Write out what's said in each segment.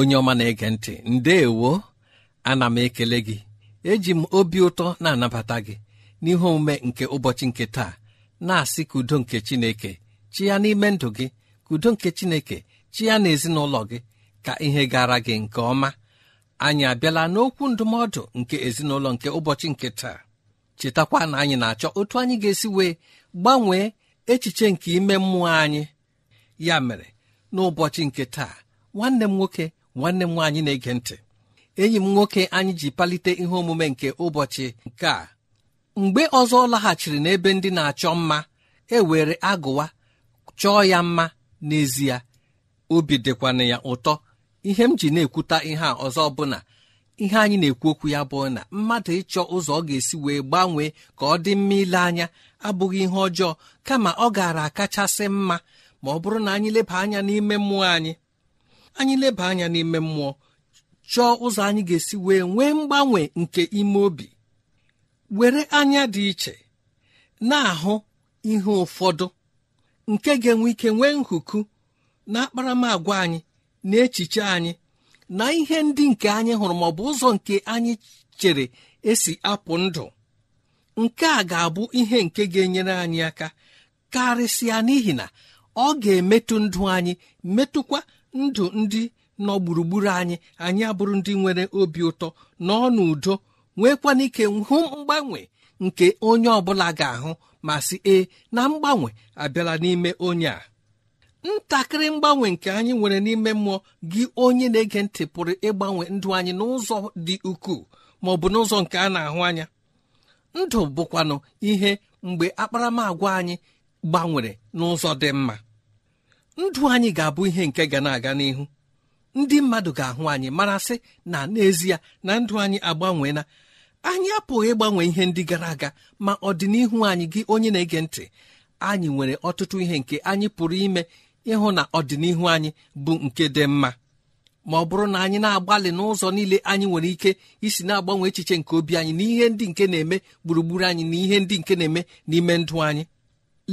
onye ọma na-ege ntị ndeewo ana m ekele gị eji m obi ụtọ na-anabata gị n'ihe omume nke ụbọchị nke taa na-asị ka udo nke chineke chi n'ime ndụ gị ka udo nke chineke chi ya na ezinụlọ gị ka ihe gara gị nke ọma anyị abịala n'okwu ndụmọdụ nke ezinụlọ nke ụbọchị nke taa chetakwa na anyị na-achọ otu anyị ga-esi wee gbanwee echiche nke ime mmụọ anyị ya mere n'ụbọchị nke taa nwanne m nwoke nwanne m nwaanyị na-ege ntị enyi m nwoke anyị ji palite ihe omume nke ụbọchị nke a mgbe ọzọ ọ laghachiri n'ebe ndị na-achọ mma e were agụwa chọọ ya mma n'ezie obi dịkwana ya ụtọ ihe m ji na-ekwuta ihe a ọzọ bụ ihe anyị na-ekwu okwu ya bụ na mmadụ ịchọ ụzọ ọ ga-esi wee gbanwee ka ọ dị mma ile anya abụghị ihe ọjọọ kama ọ gaara akachasị mma ma ọ bụrụ na anyị leba anya n'ime mmụọ anyị anyị leba anya n'ime mmụọ chọọ ụzọ anyị ga-esi wee nwee mgbanwe nke ime obi were anya dị iche na-ahụ ihe ụfọdụ nke ga-enwe ike nwee nhuku na akparamagwa anyị na echiche anyị na ihe ndị nke anyị hụrụ ma ọ bụ ụzọ nke anyị chere esi apụ ndụ nke a ga-abụ ihe nke ga-enyere anyị aka karịsịa n'ihi na ọ ga-emetụ ndụ anyị metụkwa ndụ ndị nọ gburugburu anyị anyị abụrụ ndị nwere obi ụtọ nọọ n'udo nwekwana ike hụ mgbanwe nke onye ọbụla ga-ahụ ma sị ee na mgbanwe abịala n'ime onye a ntakịrị mgbanwe nke anyị nwere n'ime mmụọ gị onye na-ege ntị pụrụ ịgbanwe ndụ anyị n'ụzọ dị ukwuu ma ọ bụ n'ụzọ nke a na-ahụ anya ndụ bụkwanụ ihe mgbe akparamagwa anyị gbanwere n'ụzọ dị mma ndụ anyị ga-abụ ihe nke ga na-aga n'ihu ndị mmadụ ga-ahụ anyị mara sị na n'ezie na ndụ anyị agbanweela anyị apụghị ịgbanwe ihe ndị gara aga ma ọdịnihu anyị gị onye na-ege ntị anyị nwere ọtụtụ ihe nke anyị pụrụ ime ịhụ na ọdịnihu anyị bụ nke dị mma ma ọ bụrụ na anyị na-agbalị n'ụzọ niile anyị nwere ike isi na-agbanwe echiche nke obi anyị na ihe ndị nke na-eme gburugburu anyị na ihe ndị nke na-eme n'ime ndụ anyị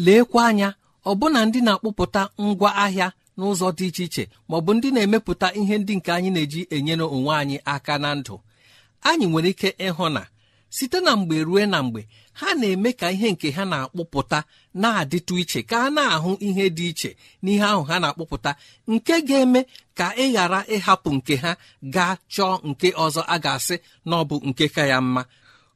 leekwa anya ọbụna ndị na-akpụpụta ngwa ahịa n'ụzọ dị iche iche maọbụ ndị na-emepụta ihe ndị nke anyị na-eji enyere onwe anyị aka na ndụ anyị nwere ike ịhụ na site na mgbe rue na mgbe ha na-eme ka ihe nke ha na-akpụpụta na-adịtụ iche ka a na-ahụ ihe dị iche n'ihe ahụ ha na-akpụpụta nke ga-eme ka ị ghara ịhapụ nke ha gaa chọọ nke ọzọ a ga-asị na ọ bụ nke ka ya mma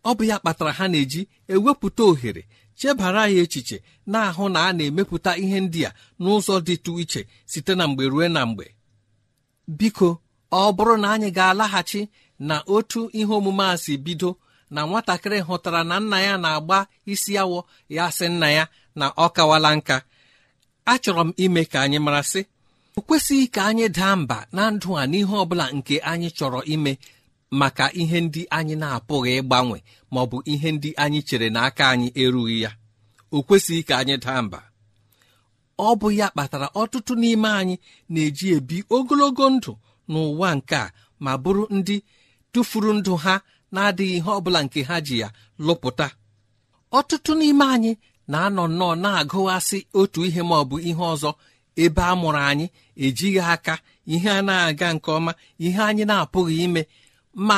ọ bụ ya kpatara ha na-eji ewepụta ohere chebara ya echiche na-ahụ na a na-emepụta ihe ndị a n'ụzọ dịtụ iche site na mgbe ruo na mgbe biko ọ bụrụ na anyị ga-alaghachi na otu ihe omume a si bido na nwatakịrị hụtara na nna ya na-agba isi awọ ya sị nna ya na ọ kawala nka achọrọ m ime ka anyị mara sị o kwesịghị ka anyị daa mba na ndụ a n'ihe ọbụla nke anyị chọrọ ime maka ihe ndị anyị na-apụghị ịgbanwe ma ọ bụ ihe ndị anyị chere n'aka anyị erughị ya o kwesịghị ka anyị daa mba ọ bụ ya kpatara ọtụtụ n'ime anyị na-eji ebi ogologo ndụ n'ụwa nke a ma bụrụ ndị tụfuru ndụ ha na-adịghị ihe ọ bụla nke ha ji ya lụpụta ọtụtụ n'ime anyị na-anọ nnọọ na-agụghasị otu ihe ma ọ bụ ihe ọzọ ebe a mụrụ anyị ejighị aka ihe a na-aga nke ọma ihe anyị na-apụghị ime ma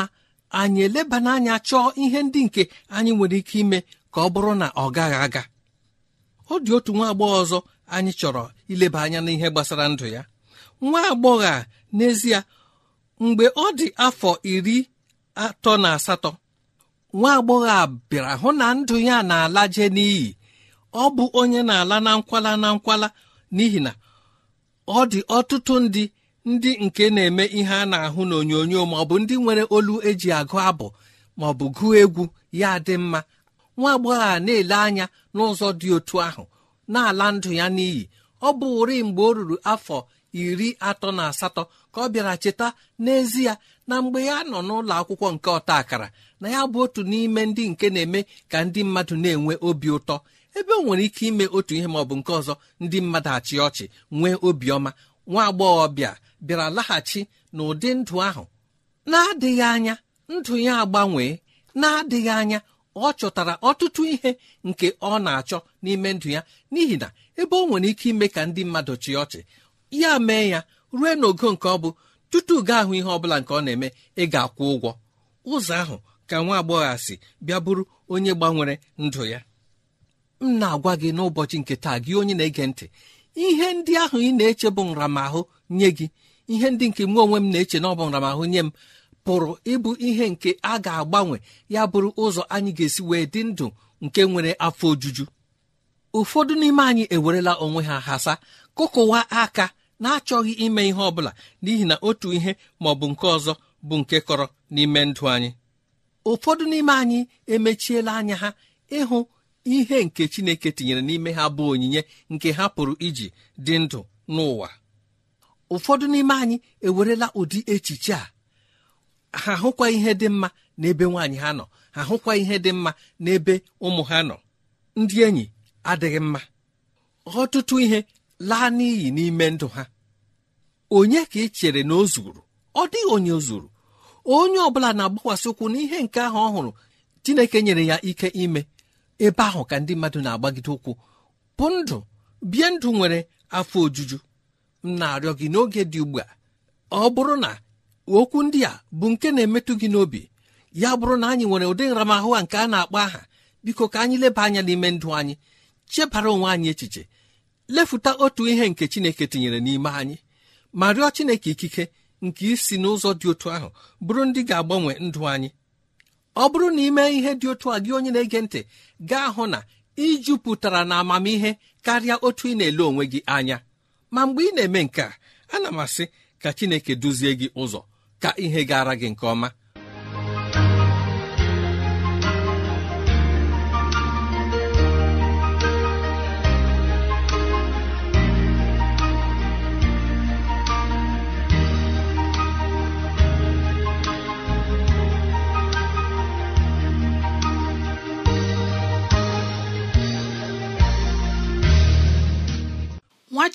anyị eleba n'anya chọọ ihe ndị nke anyị nwere ike ime ka ọ bụrụ na ọ gaghị aga ọ dị otu nwa agbọghọ ọzọ anyị chọrọ ileba anya n'ihe gbasara ndụ ya nwa agbọghọ a n'ezie mgbe ọ dị afọ iri atọ na asatọ nwa agbọghọ a bịara hụ na ndụ ya na-alaje n'iyi ọ bụ onye na-ala na nkwala na nkwala n'ihi na ọ dị ọtụtụ ndị ndị nke na-eme ihe a na-ahụ n'onyonyo ma ọ bụ ndị nwere olu eji agụ abụ ma ọ bụ gụọ egwu ya dị mma nwa agbọghọ a na-ele anya n'ụzọ dị otu ahụ na-ala ndụ ya n'iyi ọ bụ ụri mgbe o ruru afọ iri atọ na asatọ ka ọ bịara cheta n'ezie na mgbe ya nọ n'ụlọ akwụkwọ nke ọta akara na ya bụ otu n'ime ndị nke na-eme ka ndị mmadụ na-enwe obi ụtọ ebe o nwere ike ime otu ihe ma ọ bụ nke ọzọ ndị mmadụ achị ọchị nwee obiọma nwa agbọghọbịa bịara laghachi n'ụdị ndụ ahụ na-adịghị anya ndụ ya agbanwee na-adịghị anya ọ chọtara ọtụtụ ihe nke ọ na-achọ n'ime ndụ ya n'ihi na ebe ọ nwere ike ime ka ndị mmadụ chịa ọchị ya mee ya rue n'ogo nke ọ bụ tutu gaa ahụ ihe bụla nke ọ na-eme ị ga-akwụ ụgwọ ụzọ ahụ ka nwa agbọghọ si bịa bụrụ onye gbanwere ndụ ya m na-agwa gị n'ụbọchị nke taa gị onye na-ege ntị ihe ndị ahụ ị na-eche bụ nramahụ nye gị ihe ndị nke mụ onwe m na-eche na ahụ nye m pụrụ ịbụ ihe nke a ga-agbanwe ya bụrụ ụzọ anyị ga-esi wee dị ndụ nke nwere afọ ojuju ụfọdụ n'ime anyị ewerela onwe ha hasa kụkụwa aka na-achọghị ime ihe ọ bụla n'ihi na otu ihe ma ọ bụ nke ọzọ bụ nke kọrọ n'ime ndụ anyị ụfọdụ n'ime anyị emechiela anya ha ịhụ ihe nke Chineke tinyere n'ime ha bụ onyinye nke ha pụrụ iji dị ndụ n'ụwa ụfọdụ n'ime anyị ewerela ụdị echiche a ha hụkwa ihe dị mma n'ebe nwaanyị ha nọ ha hụkwa ihe dị mma n'ebe ụmụ ha nọ ndị enyi adịghị mma ọtụtụ ihe laa n'iyi n'ime ndụ ha onye ka ị chere na o zuru ọ dịghị onye zuru onye ọ bụla na-agbakwasị ụkwụ n'ihe nke ahụ ọ hụrụ Chineke nyere ya ike ime ebe ahụ ka ndị mmadụ na-agbagide ụkwụ bụ ndụ bie ndụ nwere afọ ojuju m na-arịọ gị n'oge dị ugbu a ọ bụrụ na okwu ndị a bụ nke na-emetụ gị n'obi ya bụrụ na anyị nwere ụdị nramahụ a nke a na-akpọ aha biko ka anyị leba anya n'ime ndụ anyị chebara onwe anyị echiche lefụta otu ihe nke chineke tinyere n'ime anyị ma rịọ chineke ikike nke isi n'ụzọ dị otu ahụ bụrụ ndị ga-agbanwe ndụ anyị ọ bụrụ na ime ihe dị otu a gị onye na-ege ntị gaa hụ na ijupụtara na amamihe karịa otu ị na-ele onwe gị anya ma mgbe ị na-eme nke a ana m asị ka chineke duzie gị ụzọ ka ihe gara gị nke ọma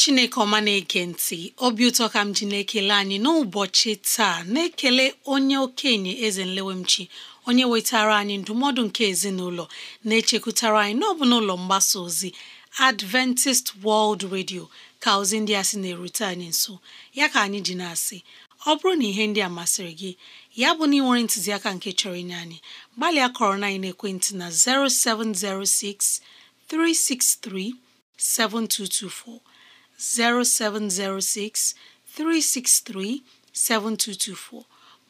chineke ọma na-ege ntị obi ụtọ ka m ji na-ekele anyị n'ụbọchị taa na-ekele onye okenye eze nlewemchi onye wetara anyị ndụmọdụ nke ezinụlọ na-echekwutara anyị n'ọbụ n'ụlọ mgbasa ozi Adventist World Radio ka ozi ndị a sị na-erute anyị nso ya ka anyị ji na-asị ọ bụrụ na ihe ndị a masịrị gị ya bụ na ị nwere ntụziaka nke chọrọ inye anyị gbalịa kọrọ na ekwentị na 0706 363 7224 0706 363 7224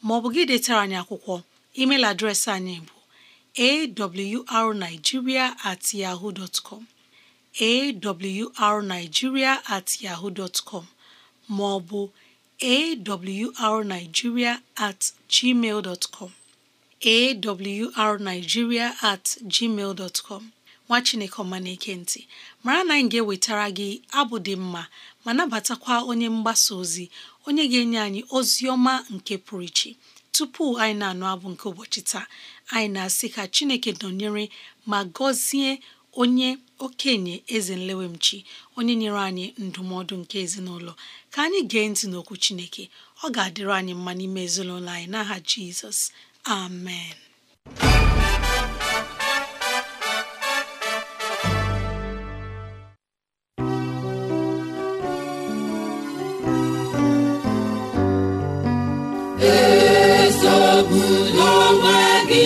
maọbụ gị detara anyị akwụkwọ email adreesị anyị bụ awrnigeria at yahoo dot com awrnigeria at yahoo dot maọbụ awrnigeria at gmail awrnigeria at gmail nwa chineke ọma na-eke ntị mara na anyị ga-ewetara gị abụ dị mma ma nabatakwa onye mgbasa ozi onye ga-enye anyị ozi ọma nke pụrụ iche tupu anyị na-anụ abụ nke ụbọchị taa anyị na-asị ka chineke nọnyere ma gọzie onye okenye eze nlewemchi onye nyere anyị ndụmọdụ nke ezinụlọ ka anyị gee ntị n'okwu chineke ọ ga-adịrị anyị mma n'ime ezinụlọ anyị n'aha jizọs amen ọbụla onwe gị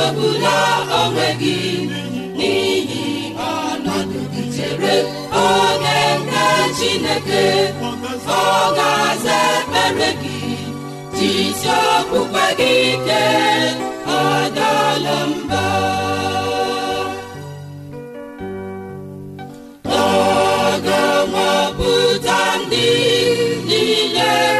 echegbula onwe gị n'ihi ọnọdụ gị chere oge nke Chineke ọ ga-aza ekpere gị jisi okpukpe gị ike ọ ọ ga-anwapụta ndị niile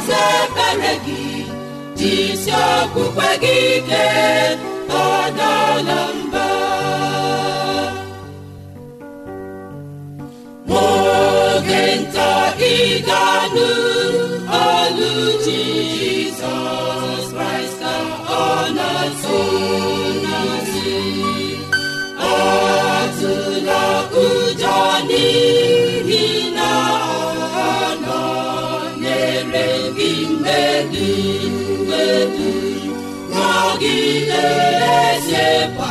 isi okpukpe gị ike adala mba n'oge nta ị ga-anụ olu chi niile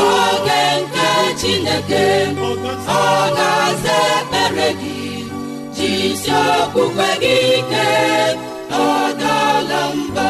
oge nke chineke ọ ga-aza ekpere gị jisi okpukpe gị ike ọ dala mba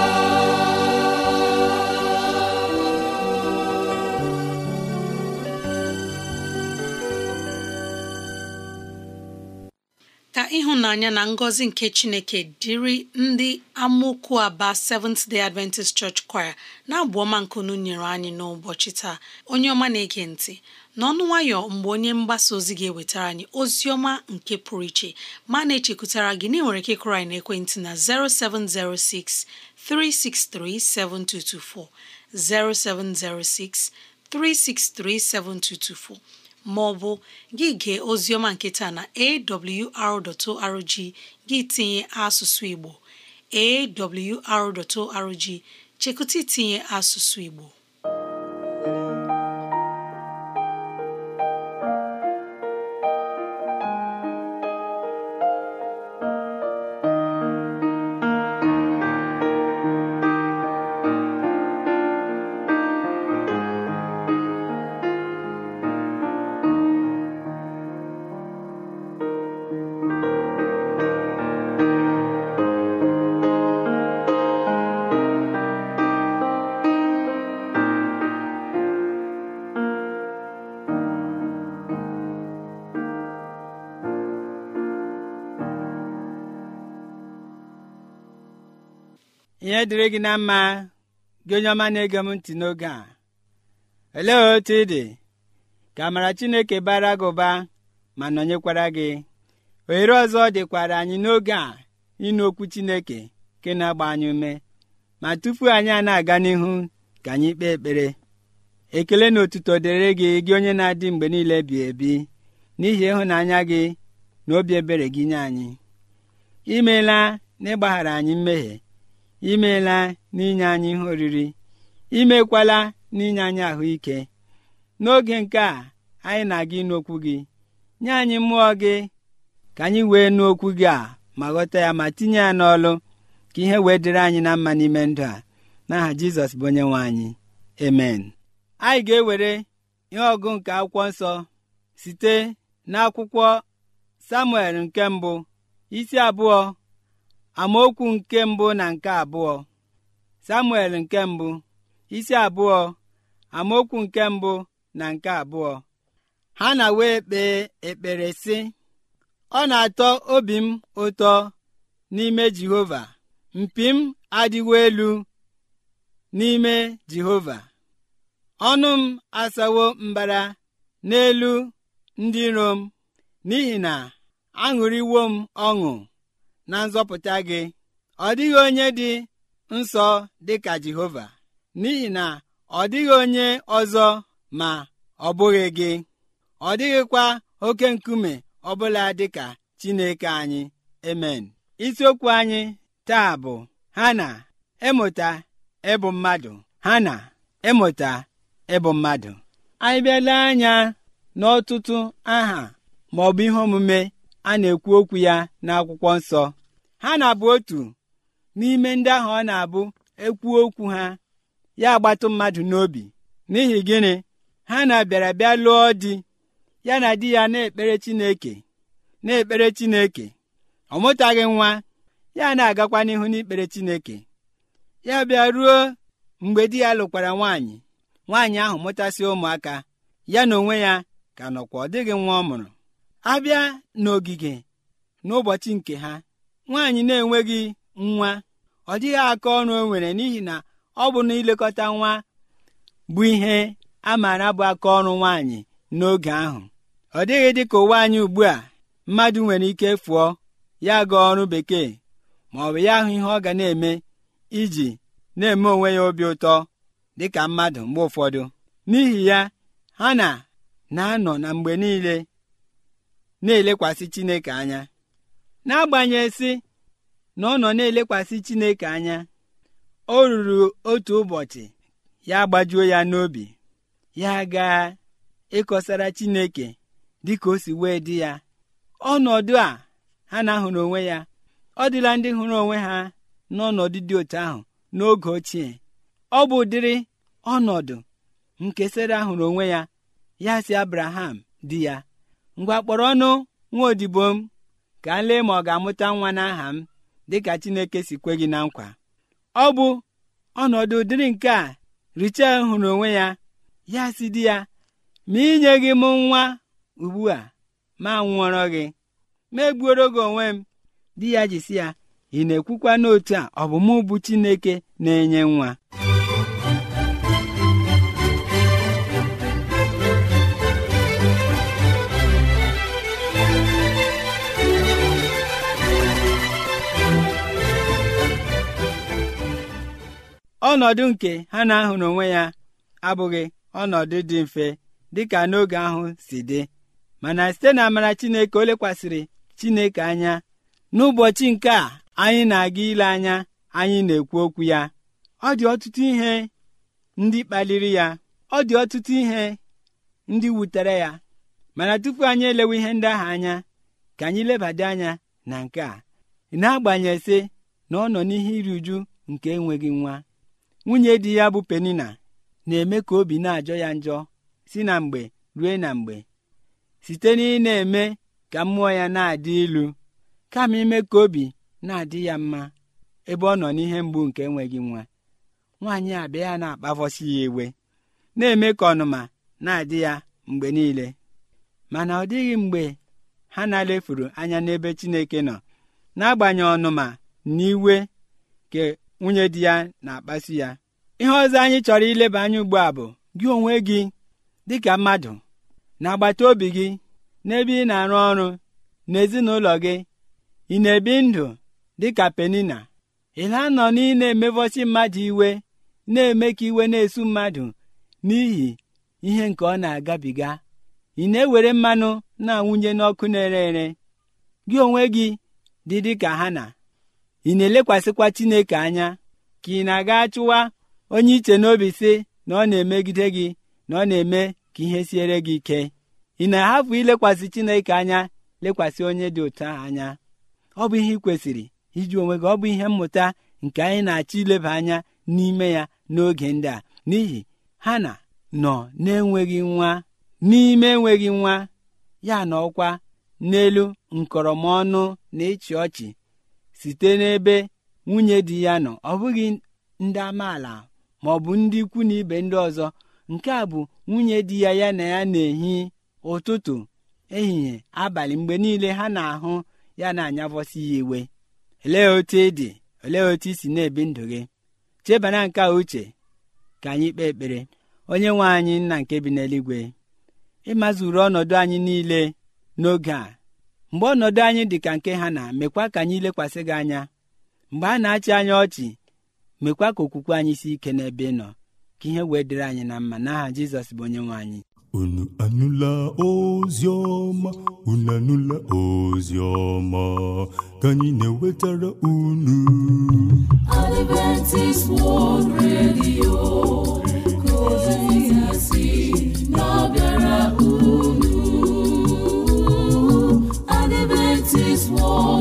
ịhụnanya na ngọzi nke Chineke dịrị ndị amokwu Aba Seventh Day Adventist Church Choir na-abụ ọma nkunu nyere anyị n'ụbọchị taa onye ọma na-ege ntị n'ọnụ nwayọ mgbe onye mgbasa ozi ga-ewetara anyị ozi ọma nke pụrụ iche ma na-echekwutara gị na ị nwere ike ịkụrụ anyị ekwentị na 0706 363 7224 0706 363 7224 ma ọ bụ gị gee oziọma nketa na awr.org gị tinye asụsụ Igbo awr.org chekụta itinye asụsụ Igbo ihe dịrị gị na mma gị onye ọma na-ege m ntị n'oge a olee otu ị dị ka amara Chineke bara gị ụba ma nọnyekwara gị ohere ọzọ dịkwara anyị n'oge a ịnụ okwu Chineke nke na-agba anyị ume ma tupu anyị a na-aga n'ihu ka anyị kpee ekpere ekele na otuto dịrị gị gị onye na-adị mgbe niile bi ebi n'ihi ịhụnanya gị na obi ebere gị nye anyị imeela na ịgbaghara anyị mmehie imeela n'inye anyị ihe oriri imekwala n'inye anyị ahụike n'oge nke a anyị na-aga ịnụ okwu gị nye anyị mmụọ gị ka anyị wee nụ okwu gị a ma ghọta ya ma tinye ya n'ọlụ ka ihe wee dịrị anyị na mma n'ime ndụ a n'aha jizọs bụ onye nwe anyị emen anyị ga-ewere ihe ọgụ nke akwụkwọ nsọ site n'akwụkwọ samuel nke mbụ isi abụọ amaokwu nke mbụ na nke abụọ samuel nke mbụ isi abụọ amaokwu nke mbụ na nke abụọ ha na wee kpee ekpere sị ọ na-atọ obi m ụtọ n'ime jehova mpi m adịwo elu n'ime jehova ọnụ m asawo mbara n'elu ndị iro m n'ihi na aṅụrịwo m ọṅụ na nzọpụta gị ọ dịghị onye dị nsọ dị ka Jehova n'ihi na ọ dịghị onye ọzọ ma ọ bụghị gị ọ dịghịkwa oke nkume ọbụla dị ka Chineke anyị emen isiokwu anyị taa bụ ha na ịmụta ịbụ mmadụ ha na ịmụta ịbụ mmadụ anyị bịala anya n'ọtụtụ aha ma bụ ihe omume a na-ekwu okwu ya n'akwụkwọ nsọ ha na-abụ otu n'ime ndị ahụ ọ na-abụ ekwuo okwu ha ya agbatụ mmadụ n'obi n'ihi gịnị ha na-abịara bịa lụọ di ya na di ya na-ekpere Chineke na-ekpere Chineke ọ mụtaghị nwa ya na-agakwa n'ihu n'ikpere Chineke ya bịa ruo mgbe di ya lụkwara nwaanyị nwaanyị ahụ mụtasị ụmụaka ya na onwe ya ka nọkwa ọ dịghị nwa ọ mụrụ abịa n'ogige n'ụbọchị nke ha nwaanyị na-enweghị nwa ọ dịghị aka ọrụ o nwere n'ihi na ọ bụ na ilekọta nwa bụ ihe a maara bụ aka ọrụ nwaanyị n'oge ahụ ọ dịghị dị ka ụwa anyị ugbu a mmadụ nwere ike fụọ ya gaa ọrụ bekee ma ọ bụ ya ahụ ihe ọ ga na-eme iji na-eme onwe ya obi ụtọ dị ka mmadụ mgbe ụfọdụ n'ihi ya ha na na-anọ na mgbe niile na-elekwasị Chineke anya n'agbanyeghị si na ọ nọ na-elekwasị chineke anya o ruru otu ụbọchị ya gbajuo ya n'obi ya gaa ịkọsara chineke dịka o si wee dị ya ọnọdụ a ha na-ahụrụ onwe ya ọ dịla ndị hụrụ onwe ha n'ọnọdụ dị otu ahụ n'oge ochie ọ bụ ụdịrị ọnọdụ nke sara onwe ya ya si Abraham di ya ngwa kpọrọ ọnụ nwa odibo m ka m lee ma ọ ga-amụta nwa n'aha m dịka Chineke si kwe gị na nkwa ọ bụ ọnọdụ dịrị nke a Richel hụrụ onwe ya ya si di ya ma inye gị m nwa ugbu a ma nwụọrọ gị ma egbuoro gị onwe m di ya jisi ya ị na-ekwukwa n'otu a ọ bụ Chineke na-enye nwa ọnọdụ nke ha na-ahụrụ onwe ya abụghị ọnọdụ dị mfe dịka n'oge ahụ si dị mana site na amara Chineke o lekwasịrị Chineke anya n'ụbọchị nke a anyị na-aga ile anya anyị na-ekwu okwu ya ọ dị ọtụtụ ihe ndị kpaliri ya ọ dị ọtụtụ ihe ndị wutere ya mana tupu anyị elewe ihe ndị ahụ anya ka anyị lebada anya na nke a na sị na ọ nọ n'ihe iri uju nke enweghị nwa nwunye di ya bụ penina na-eme ka obi na-ajọ ya njọ si na mgbe rue na mgbe site na ị na-eme ka mmụọ ya na-adị ilu kama ime ka obi na-adị ya mma ebe ọ nọ n'ihe mgbu nke enweghị nwa nwaanyị abịa ya na-akpavọsi ya iwe na-eme ka ọnụma na-adị ya mgbe niile mana ọ dịghị mgbe ha na-alefuru anya n'ebe Chineke nọ n'agbanyeghị ọnụma na iwe nwunye di ya na-akpasu ya ihe ọzọ anyị chọrọ ileba anya ugbu a bụ gị onwe gị dịka mmadụ na agbata obi gị n'ebe ị na-arụ ọrụ n'ezinụlọ gị ị na-ebi ndụ dịka penina ịla nọ na ị na-emevọsi mmadụ iwe na-eme ka iwe na-esu mmadụ n'ihi ihe nke ọ na-agabiga ị na-ewere mmanụ na-awụnye n'ọkụ na-ere ere gị onwe gị dị dịka ha na ị na-elekwasịkwa Chineke anya ka ị na-aga chụwa onye iche n'obi si na ọ na-emegide gị na ọ na-eme ka ihe siere gị ike ị na-ahapụ ilekwasị Chineke anya lekwasị onye dị ụtọ anya ọ bụ ihe ị kwesịrị iji onwe gị ọ bụ ihe mmụta nke anyị na-achọ ileba anya n'ime ya n'oge ndị a n'ihi ha na nọ na-enweghị nwa n'ime enweghị nwa ya na ọkwa n'elu nkọrọmọnụ na ịchị ọchị site n'ebe nwunye di ya nọ ọ bụghị ndị amaala ma ọ bụ ndị ikwu na ibe ndị ọzọ nke a bụ nwunye di ya ya na ya na-ehi ụtụtụ ehihie abalị mgbe niile ha na-ahụ ya na-anyavọsi ya iwe olee otu ị dị olee otu i si na-ebi ndụ gị chebana nke uche ka anyị kpee ekpere onye nwe anyị nna nke bi n'eluigwe ịmazuru ọnọdụ anyị niile n'oge a mgbe ọnọdụ anyị dị ka nke ha na mekwa ka anyị lekwasị gị anya mgbe a na-achị anyị ọchị mekwa ka okwukwe anyị si ike n'ebe nọ ka ihe wee dịrị anyị na mma n'aha Jizọs bụ onye nwe anyị unu anụla ozi ọma unu anụla ozi ọma ka anyị na-ewetara unu Adventist World Radio nwa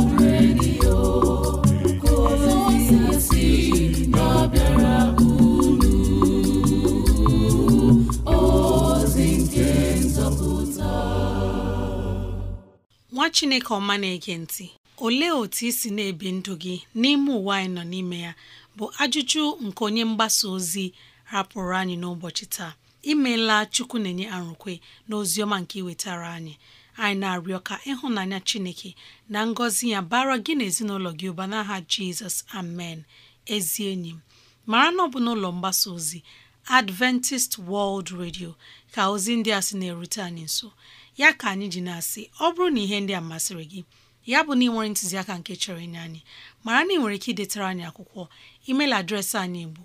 chineke ọma na-ege ntị olee otu isi si na-ebi ndụ gị n'ime ụwa anyị nọ n'ime ya bụ ajụjụ nke onye mgbasa ozi rapụrụ anyị n'ụbọchị taa imeela chukwu na-enye arụkwe na ozi ọma nke iwetara anyị anyị na-arịọ ka ịhụnanya Chineke na ngọzi ya bara gị na ezinụlọ gị ụba n'aha Jizọs amen ezi enyi m mara na ọ bụ n'ụlọ mgbasa ozi Adventist World Radio ka ozi ndị a sị na-erute anyị nso ya ka anyị ji na-asị ọ bụrụ na ihe ndị a masịrị gị ya bụ na ị nwere ntụziaka nke chọrọ inye anyị mara na ị nwere ike idetara anyị akwụkwọ email adreesị anyị bụ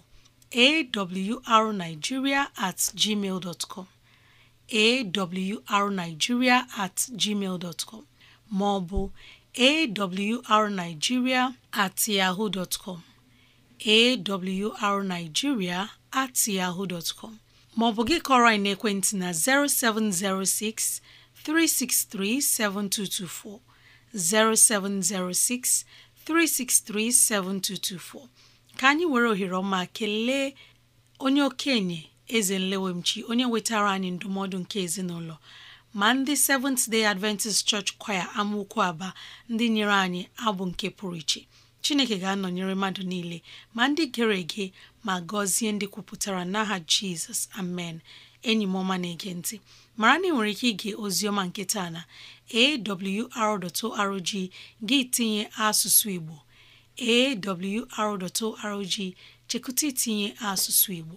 awrnigeria at gmail dot com awrnigeria at gmail dot com ma awrnigeria at yahoo dot com at yahoo dot com ma gị kọrọ anyị naekwentị na 0706 363 7224 0706 363 7224 ka anyị nwere ohere ọma kelee onye okenye eze nlewemchi onye wetara anyị ndụmọdụ nke ezinụlọ ma ndị Seventh Day Adventist Church Choir amaokwu aba ndị nyere anyị abụ nke pụrụ iche Chineke ga-anọnyere mmadụ niile ma ndị gere ege ma gọzie ndị kwupụtara n'aha Jizọs amen enyi m ọma na-ege ntị mara na ị nwere ike ige oziọma nke na awr.org gị tinye asụsụ Igbo awr.org chekụta itinye asụsụ Igbo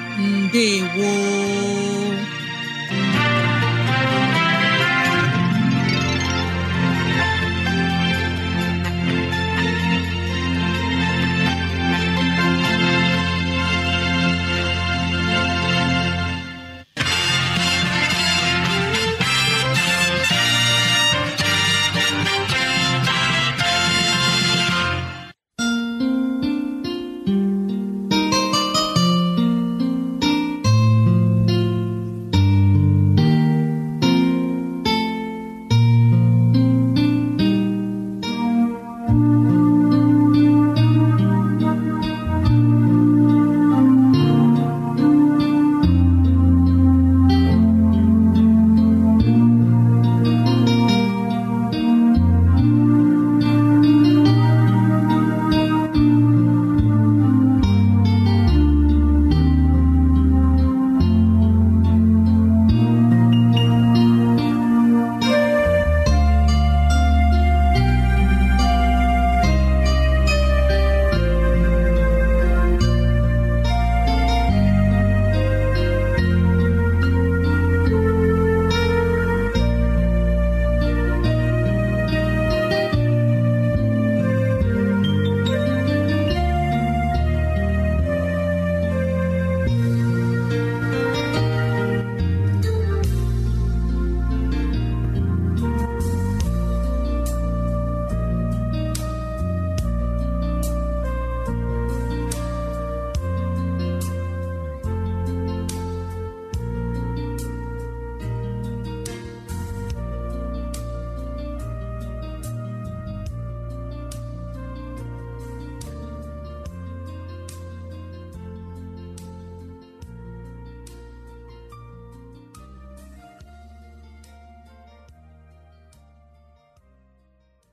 ndewo